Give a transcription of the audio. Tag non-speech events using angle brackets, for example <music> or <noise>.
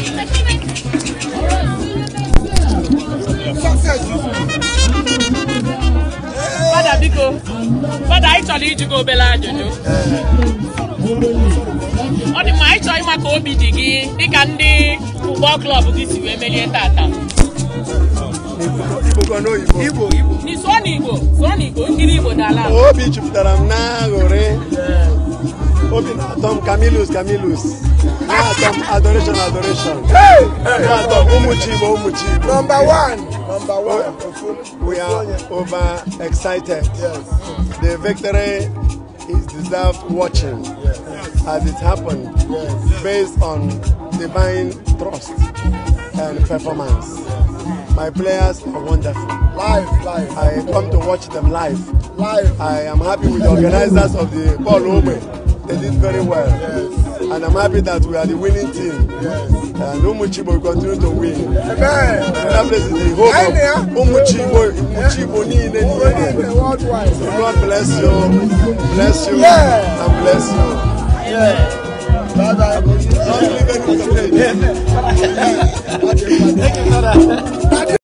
Fada biko, fada anyị chọrọ iji gị obere ajụjụ. Ọ dị mma anyị chọrọ ịma ka obi dị gị dịka ndị ụgbọ klọb gị si wee merie tata. Igbo, Igbo. N'Igbo, Igbo. N'Igbo, Igbo, nkiri Igbo dala. Obi jupụtara m n'aṅụrị some Camillus, Camillus. There some adoration, adoration. Hey! hey. are Umuchibo, Umuchibo. Number one. Number one. We are over excited. Yes. The victory is deserved watching yes. as it happened yes. based on divine trust and performance. Yes. My players are wonderful. Live, live. I come to watch them live. Live. I am happy with the organizers of the Paul Ome. They did very well. Yes. And I'm happy that we are the winning team. Yes. And Umuchibo will continue to win. Amen. That place the hope of Umuchibo, Umuchibo Nile Worldwide. God bless you. Bless you. Yeah. And bless you. Yeah. Bye bye. Don't leave anything <laughs> Thank you, brother.